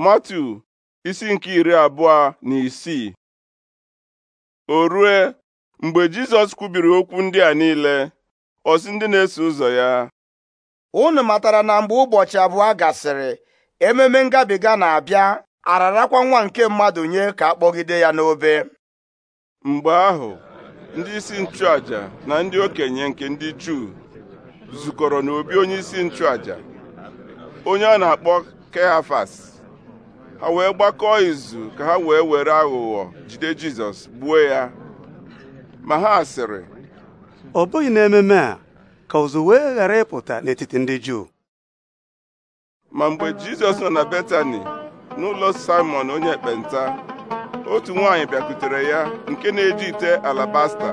Matu isi nke iri abụọ na isii o rue mgbe Jizọs kwubiri okwu ndị a niile ọ sị ndị na-eso ụzọ ya unu matara na mgbe ụbọchị abụọ gasịrị ememe ngabiga na-abịa ararakwa nwa nke mmadụ nye ka a kpọgide ya n'obe mgbe ahụ ndị isi nchụaja na ndị okenye nke ndị Juu zukọrọ n'obi onye isi nchụaja onye a na-akpọ Kehafas ha wee gbakọọ izu ka ha wee were aghụghọ jide Jizọs gbuo ya ma ha sịrị ọ bụghị n'ememe a ka ụzụ wee ghara ịpụta n'etiti ndị Juu ma mgbe Jizọs nọ na Betani n'ụlọ Simon onye ekpenta otu nwanyị bịakwutere ya nke na-eji ite alabasta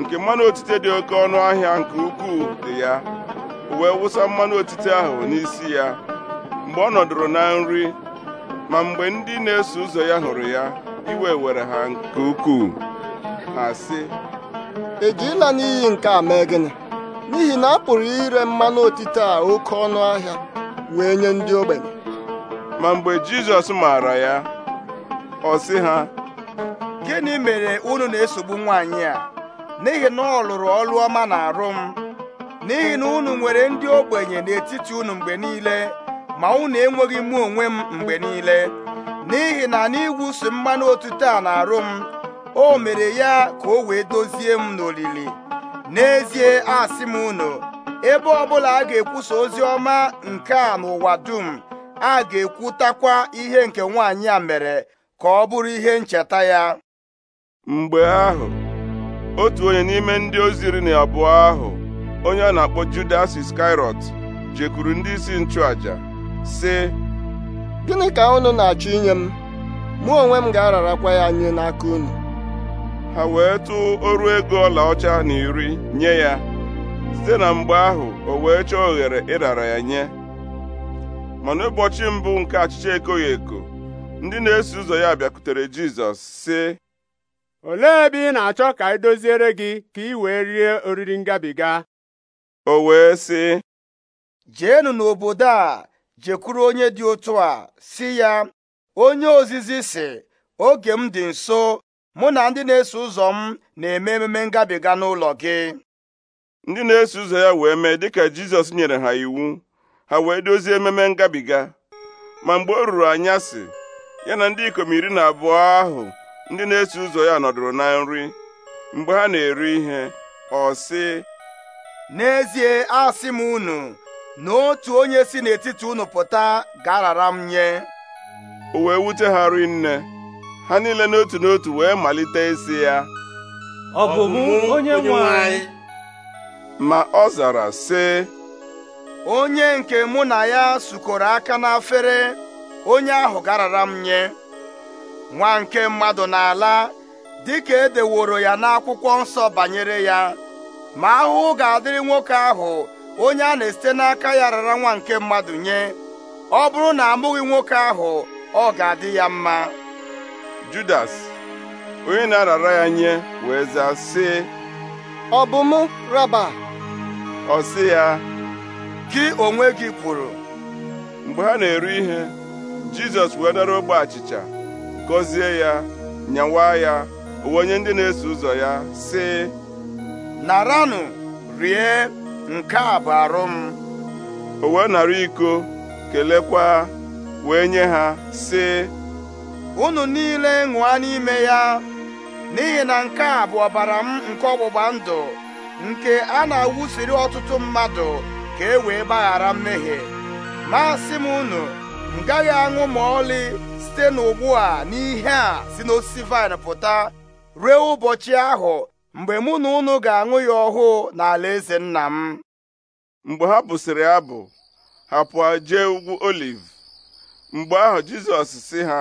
nke mmanụ otite dị oke ọnụ ahịa nke ukwuu dị ya wee wụsa mmanụ otite ahụ n'isi ya mgbe ọ nọdụrụ na nri ma mgbe ndị na-eso ụzọ ya hụrụ ya iwe were ha nke ukwuu ha sị ejila n'iyi nke a mee gịnị n'ihi na a pụrụ ire mmanụ otite a oke ọnụ ahịa wee nye ndị ogbenye ma mgbe Jizọs maara ya ọ sị ha gịnị mere unu na-esogbu nwaanyị a n'ihi na ọ lụrụ ọrụ ọma na m n'ihi na unu nwere ndị ogbenye n'etiti unu mgbe niile ma unu enweghị mụ onwe m mgbe niile n'ihi na n'ịwụsi mmanụ otuto a na-arụ m o mere ya ka o wee dozie m n'olili n'ezie asị m unu ebe ọbụla a ga-ekwusa ozi ọma nke a n'ụwa dum a ga-ekwutakwa ihe nke nwaanyị a mere ka ọ bụrụ ihe ncheta ya mgbe ahụ otu onye n'ime ndị ozi iri na abụọ ahụ onye a na-akpọ Judas Iskariot jekwuru ndị isi nchụaja sị gịnị ka unu na-achọ inye m mụ onwe m ga-ararakwa ya nye n'aka unu ha wee tụọ ọrụ ego ọlaọcha na iri nye ya site na mgbe ahụ o wee chọọ oghere ịrara ya nye mana ụbọchị mbụ nke achịcha ekoghị eko ndị na-eso ụzọ ya bịakwutere Jizọs sị olee ebe ị na-achọ ka e doziere gị ka ị wee rie oriri ngabiga o wee sị jeenụ n'obodo a jekwuru onye dị otu a si ya onye ozizi si oge m dị nso mụ na ndị na-eso ụzọ m na-eme ememe ngabiga n'ụlọ gị ndị na-eso ụzọ ya wee mee dịka Jizọs nyere ha iwu ha wee dozie ememe ngabiga ma mgbe o ruru anyasị ya na ndị ikom iri na abụọ ahụ ndị na-eso ụzọ ya nọdụrụ na nri mgbe ha na-eri ihe ọ sị n'ezie asị m unu na otu onye si n'etiti unu pụta garara m nye o wee wute ha rinne ha niile n'otu n'otu wee malite isi ya ọ bụ onye nwe ma ọ zara sị onye nke mụ na ya sukọrọ aka n'afere onye ahụ garara m nye nwa nke mmadụ n'ala dịka edeworo ya n'akwụkwọ nsọ banyere ya ma ahụhụ ga-adịrị nwoke ahụ onye a na-esite n'aka ya rara nwa nke mmadụ nye ọ bụrụ na amụghị nwoke ahụ ọ ga-adị ya mma Judas onye na-arara ya nye wee zaa sị ọ bụ mụ raba ọ sị ya gị onwe gị kwuru mgbe ha na eru ihe Jizọs wee dara ogbe achịcha gọzie ya nyawa ya onye ndị na-eso ụzọ ya sị naranụ rie nke a bụ arụ m o wee nara iko kelekwa wee nye ha sị unu niile ṅụa n'ime ya n'ihi na nke a bụ ọbara m nke ọgbụgba ndụ nke a na-awụsiri ọtụtụ mmadụ ka e wee gbaghara mmehie masị m unu m gaghị aṅụ ma ọlị site n'ugbu a n'ihe a si n'osisi vaịn pụta ruo ụbọchị ahụ mgbe mụ na unu ga-aṅụ ya ọhụụ n'ala eze nna m mgbe ha bụsịrị abụ ha pụọ jee ugwu oliv mgbe ahụ jizọs sị ha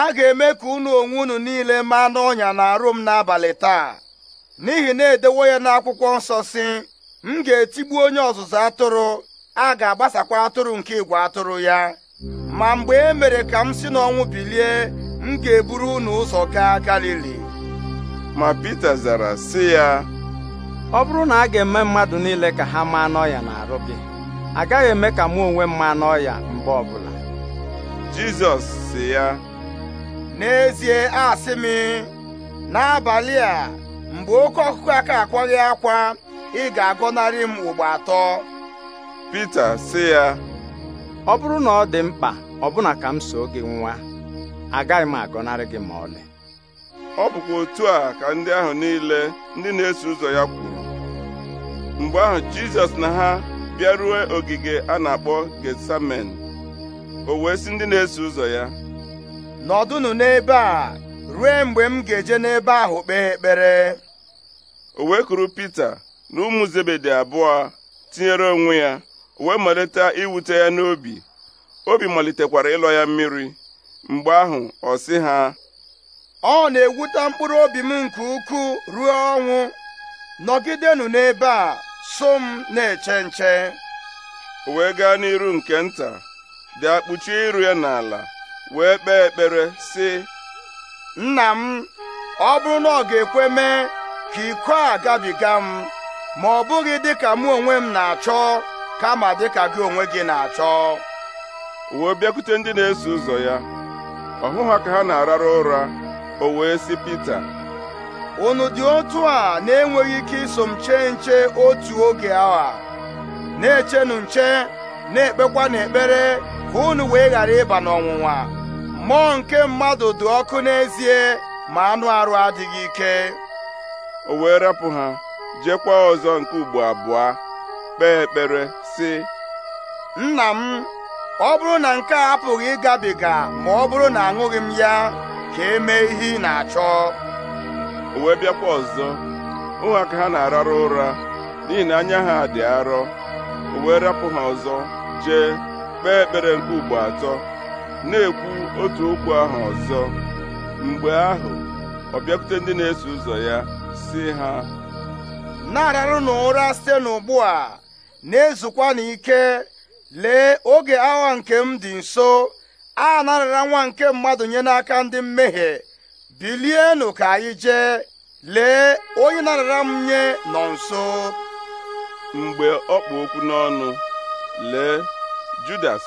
a ga-eme ka unu onwe unu niile maa n'ọnya na-arụ m n'abalị taa n'ihi na edewo ya n'akwụkwọ nsọ si m ga-etigbu onye ọzụzụ atụrụ a ga-agbasakwa atụrụ nke igwe atụrụ ya ma mgbe e mere ka m si n'ọnwụ bilie m ga-eburu unu ụzọ gaa Galili ma Pita zara sị ya ọ bụrụ na a ga-eme mmadụ niile ka ha maa n'ọya na-arụ gị agaghị eme ka mụ onwe m maa n'ọya mgbe ọbụla Jizọs sị ya n'ezie asị m n'abalị a mgbe oke ọkụkọ aka akwaghị akwa ị ga-agọnarị m ugbo atọ Pita sị ya ọ bụrụ na ọ dị mkpa ọbụna ka m soo gị nwa agaghị m agọnarị gị ma ọlị ọ bụkwa otu a ka ndị ahụ niile ndị na-eso ụzọ ya kwuru mgbe ahụ jizọs na ha bịaruo ogige a na-akpọ getsamen o wee sị ndị na-eso ụzọ ya nọdụnụ n'ebe a ruo mgbe m ga-eje n'ebe ahụ kpee ekpere o wee kuru Pita na ụmụ Zebedi abụọ tinyere onwe ya o wee malite iwute ya n'obi obi malitekwara ịlọ ya mmiri mgbe ahụ ọ sị ha ọ na-ewute mkpụrụ obi m nke ukwuu ruo ọnwụ nọgidenụ n'ebe a so m na-eche nche wee gaa n'iru nke nta dị kpuchie iru ya n'ala wee kpee ekpere sị nna m ọ bụrụ na ọ ga-ekwe mee ka iko a gabiga m ma ọ bụghị dịka mụ onwe m na-achọ kama dịka gị onwe gị na-achọ wee bịakwute ndị na-eso ụzọ ya ọ ha ka ha na-arara ụra o wee sị Pita unu dị otu a na-enweghị ike iso m chee nche otu oge awa na-echenụ nche na-ekpekwa n'ekpere ka unu wee ghara ịba n'ọnwụnwa mmụọ nke mmadụ dị ọkụ n'ezie ma anụ arụ adịghị ike o wee rapụ ha jekwa ọzọ nke ugbo abụọ kpee ekpere si nna m ọ bụrụ na nke a apụghị ịgabiga ma ọ bụrụ na aṅụghị m ya ka e mee ihe ị na-achọ o wee bịakwa ọzọ ụmụaka ha na-ararụ ụra n'ihi na anya ha dị arọ o wee rapụ ha ọzọ jee kpee ekpere nke ugbo atọ na-ekwu otu okwu ahụ ọzọ mgbe ahụ ọ bịakwute ndị na-eso ụzọ ya si ha na-ararụ ụra site n'ugbu a na-ezukwa n'ike lee oge awa nke m dị nso a narara nwa nke mmadụ nye n'aka ndị mmehie bilienụ ka anyị jee lee onye narara m nye nọ nso mgbe ọ kpụ okwu n'ọnụ lee Judas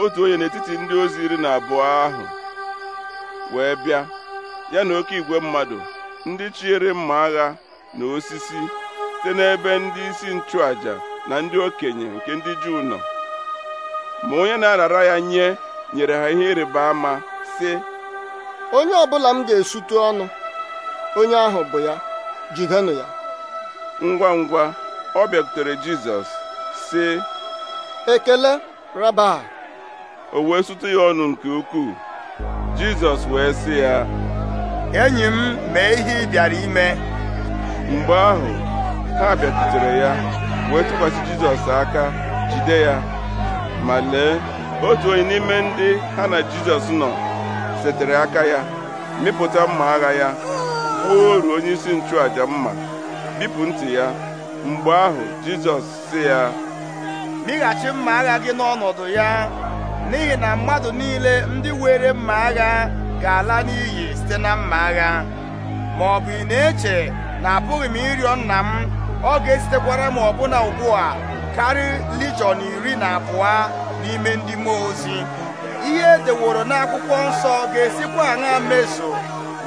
otu onye n'etiti ndị ozi iri na abụọ ahụ wee bịa ya na oke igwe mmadụ ndị chiere mma agha na osisi site n'ebe ndị isi nchụàjà na ndị okenye nke ndị Juu nọ ma onye na-arara ya nye nyere ha ihe ịrịba ama sị onye ọbụla m ga esutu ọnụ onye ahụ bụ ya jidenụ ya ngwa ngwa ọ bịakwutere Jizọs sị ekele raba o wee sụtụ ya ọnụ nke ukwuu Jizọs wee sị ya enyi m mee ihe ị bịara ime mgbe ahụ ha bịakwutere ya wee tụkwasị Jizọs aka jide ya ma lee otu onye n'ime ndị ha na jizọs nọ setere aka ya mịpụta mma agha ya kwuo oru onyeisi isi nchụaja mma bipụ ntị ya mgbe ahụ jizọs si ya mịghachi mma agha gị n'ọnọdụ ya n'ihi na mmadụ niile ndị were mma agha ga-ala n'iyi site na mma agha ma ọ bụ ị na-eche na apụghị m ịrịọ nna m ọ ga-esitekwara m ọbụna ugbu a karị lijọn iri na abụọ n'ime ndị mmụọ ozi ihe edeworo n'akwụkwọ nsọ ga-esikwa aṅa meso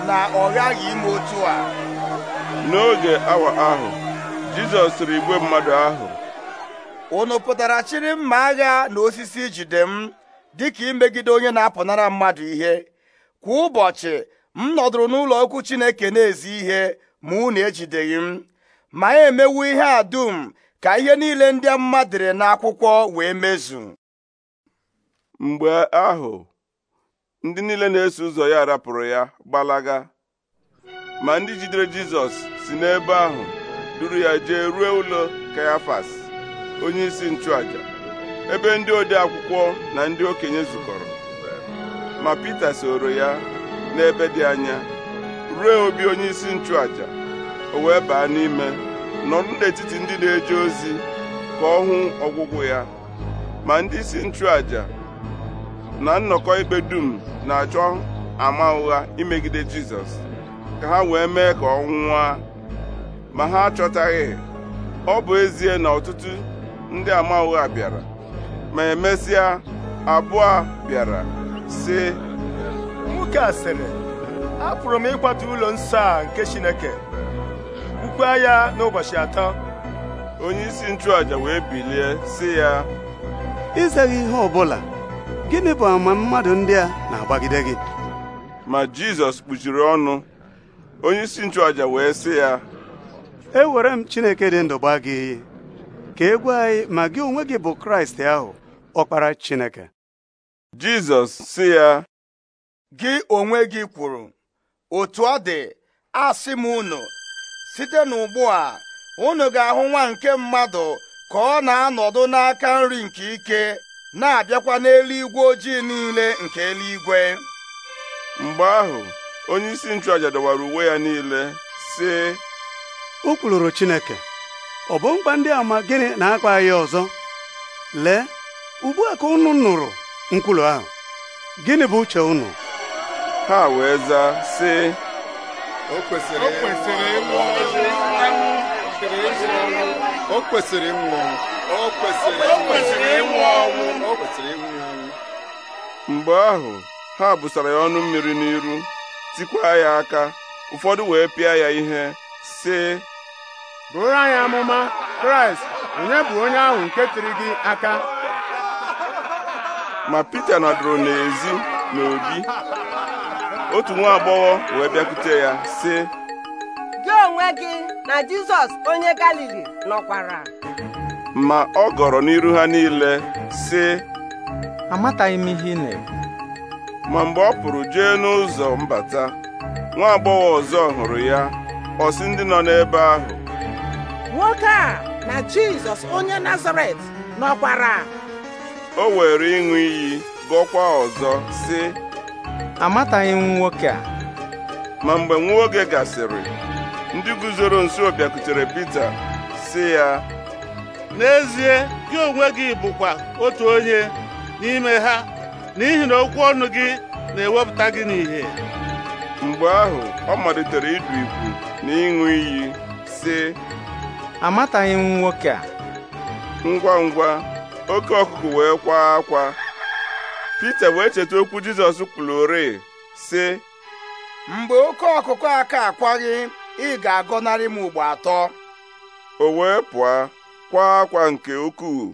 na ọ ghaghị ime otu a n'oge awa ahụ Jizọs sịrị igwe mmadụ ahụ unu pụtara chịrị mma agha na osisi jide m dịka imegide onye na-apụnara mmadụ ihe kwa ụbọchị m nọdụrụ n'ụlọ okwu Chineke na-ezi ihe ma unu ejideghị m ma emewu ihe a dum ka ihe niile ndị mmadụ dere n'akwụkwọ wee mezu mgbe ahụ ndị niile na-eso ụzọ ya rapụrụ ya gbalaga ma ndị jidere Jizọs si n'ebe ahụ duru ya jee ruo ụlọ Kayafas isi nchụaja ebe ndị ode akwụkwọ na ndị okenye zukọrọ ma Pita soro ya n'ebe dị anya ruo obi onyeisi nchụaja o wee baa n'ime nọrọ n'etiti ndị na-eje ozi ka ọ hụ ọgwụgwụ ya ma ndị isi nchụaja na nnọkọ ikpe dum na-achọ ama ụgha imegide jizọs ka ha wee mee ka ọ nwụọ ma ha achọtaghị ọ bụ ezie na ọtụtụ ndị ama ụgha bịara ma emesịa abụọ bịara sị nwoke a sịrị apụrụ m ịkwata ụlọ nsọ a nke chineke ukwe ya n'ụbọchị atọ onye isi wee bilie sị ya izeghị ihe ọbụla gịnị bụ ama mmadụ ndị a na-agbagide gị ma Jizọs kpuchiri ọnụ onye isi nchụaja wee sị ya ewere m Chineke dị ndụ gị ka egwu gwa anyị ma gị onwe gị bụ Kraịst ahụ ọkpara Chineke Jizọs sị ya gị onwe gị kwuru otu ọ dị asị m unu site n'ugbu a unu ga-ahụ nwa nke mmadụ ka ọ na-anọdụ n'aka nri nke ike na-abịakwa n'eluigwe ojii niile nke eluigwe mgbe ahụ onye isi nchụaja dọwara uwe ya niile sị o kwuluru Chineke ọ bụ mkpa ndị ama gịnị na-akpa ya ọzọ lee ugbu a ka unu nụrụ nkwulu ahụ gịnị bụ uche unu ha wee zaa sị o kwesịrị ịnwụ ọnwụ o kwesịrị ọnwụ mgbe ahụ ha busara ya ọnụ mmiri n'iru tikwa ya aka ụfọdụ wee pịa ya ihe sị bụrụ anyị amụma kraịst onye bụ onye ahụ nke tiri gị aka ma pita nọdụrụ n'ezi n'obi otu nwa agbọghọ wee bịakwute ya sị gị onwe gị na jizọs onye galili nọkwara ma ọ gọrọ n'iru ha niile sị amataghị m ihe ị na ma mgbe ọ pụrụ jee n'ụzọ mbata nwa agbọghọ ọzọ hụrụ ya ọ sị ndị nọ n'ebe ahụ nwoke a na Jizọs onye Nazaret nọkwara o were ịṅụ iyi gọkwa ọzọ sị amataghị m nwoke a ma mgbe nwa oge gasịrị ndị guzoro nso bịakutere Pita sị ya n'ezie gị onwe gị bụkwa otu onye n'ime ha n'ihi na okwu ọnụ gị na-ewepụta gị n'ìhè mgbe ahụ ọ malitere ịdụ ikwu na ịṅụ iyi sị amataghị m nwoke a ngwa ngwa oke ọkụkụ wee kwaa akwa Pita wee cheta okwu Jizọs kwulore sị mgbe oke ọkụkụ aka akwaghị ị ga-agọnarị m ugbo atọ o wee pụọ kwa akwa nke ukwuu